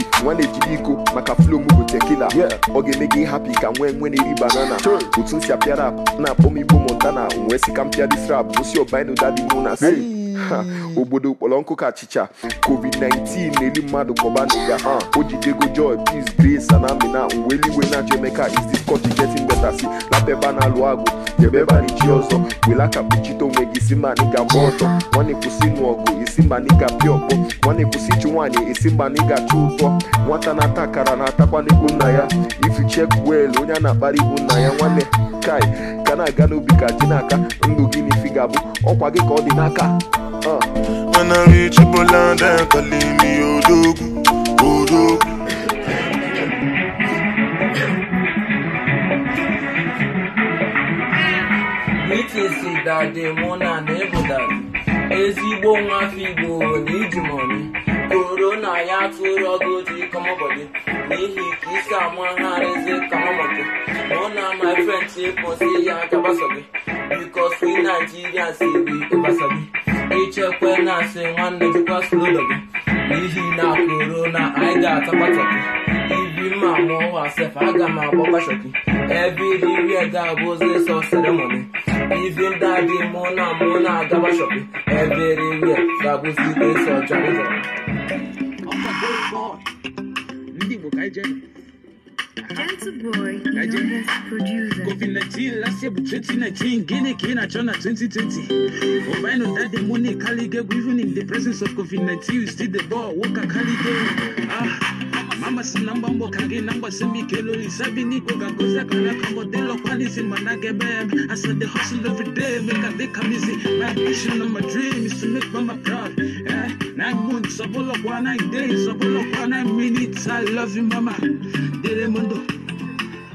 si nwa na-ejide iko maka flow m bụ tekila ọ ga-eme gị hapi ka nwee nwe na-eri banana otu m si apịa rap na-akpọ m igbo montana wee si ka m pịa dis rap gosi ọbainu dadi mụ na si obodo kpọrọ nkụ ka achịcha covid-19 na-eli mmadụ kpọba n'ụga ha uh, o jidego joy peace grace na amina uwe eluigwe na-achọ emeka is this country getting better si na peba na alụ agụ debeba nchi ọzọ welakapụchite onwe gị isi ma n'ịga gba ọtọ nwanne kwụsị ịnụ ọgụ isi ma n'ịga pịa ọkpọ nwanne kwụsị ichi nwaanyị isi ma n'ịga chụ ụtọ nwata na-ata akara na-atakwa n'ikwu nna ya chek wel onye a na-akpara ikwu nna ya nwanne kai ka na-aga n'obi ka ji n'aka ndụ ah. gị n'ifi ga-abụ ọkwa gị ka ọ dị n'aka mana richibola ndị kaliimi odogwu odogwu Akisi dadi mụ na na ezigbo nwafọ Igbo na ijimoni korona ya tụrụ ọgụ ji n'ihi ka isi amagharizi kamọbọdị mụ na my friend kwụsị ya gabasobi bikos si Naijiria si bụ ịbasobi ichekwe na asị nwanne jikwa slolo gị n'ihi na korona anyị ga-atapata ibi mma mụọ sef aga m agba gbashoki ebe iri ga-abụzi sọ seremoni Even daddy, mona, mona, gawa shopping. Everywhere, gabu city, so jolly. Oh my God! Ndi book, I just. Gentle boy, youngest producer. COVID 19, last year, 2019, Guinea, Kenya, China, 2020. Ovino, that daddy, money, Kalige, even in the presence of COVID 19, you still the ball, Walker, Kalige. Ah. number, amasinamba mbokage nambasemikelo lisabini kokakozakana kangotelo kwalisi manake bebe i I said they hustle every day make a big easy. my vision and my dream is to make mama proud yeah. nine months a abolokwa nine days a abolokwa nine minutes i love you mama delemondo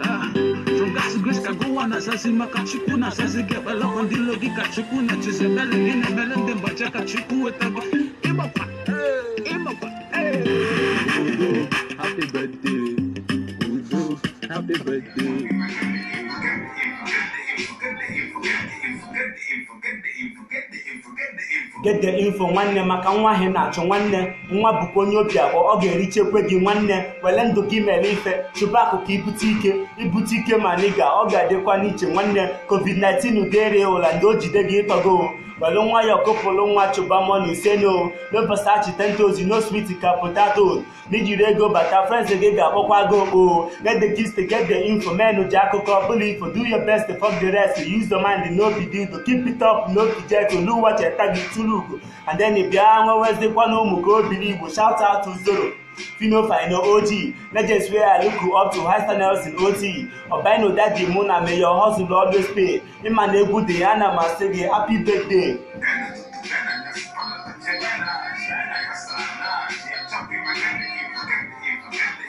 Ah, from God's grace I go on a my get asasi makachukuna asasi gebala kondilo gikachukuna chizebele nene bele ndembacha kachukwe tabo kebapa happy birthday. Get info nwanne maka nwa ahị na-achọ nwanne nwa bụkwa onye obi abụọ ọ ga-erichekwe gị nwanne were ndụ gị mere ife chụba akụkụ ibute ike ibute ike ma nịga ọ ga-adịkwa n'iche nwanne covid-19 dere ụla ndị o jide gị ịtọgo were nwa ya ọkụpụrụ nwa chụba mọnụ ise no lopesa chitentozi no swit ka potato n'ijiri ego bata frens gị ga-akpọkwa gị okpo get the gist get the info menu ji akụkọ bully. For do your best fuck the rest use your mind no be To keep it up no be jet olu ụwa cheta gị tụrụ ugo and then bịa nwewezikwa na ụmụ ka obiri igbo shout out to zero female final OG, legends where I look up to high standards in OT. Obino Daddy Muna, may your hustle always pay. Imanegu Diana Masege, happy birthday.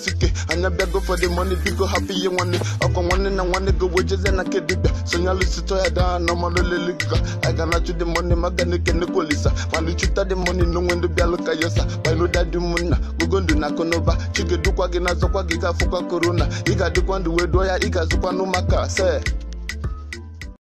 sike ike anya bịago for the money biko hapụ ihe nwanne ọkwa nwanne na nwanne go wejezie na nke dibịa sonyalụsitọ ya daa na ọmalụlelika aga na chụ the money maga na ekenekwolisa mana chụta the money n'onwe ndị bịalụ ka yosa bainoda dị ụmụnna gogo ndụ na akụnụba chigedukwa gị na azọkwa gị ga-afụkwa korona ị ga-adịkwa ndụ wee dụọ ya ị ga se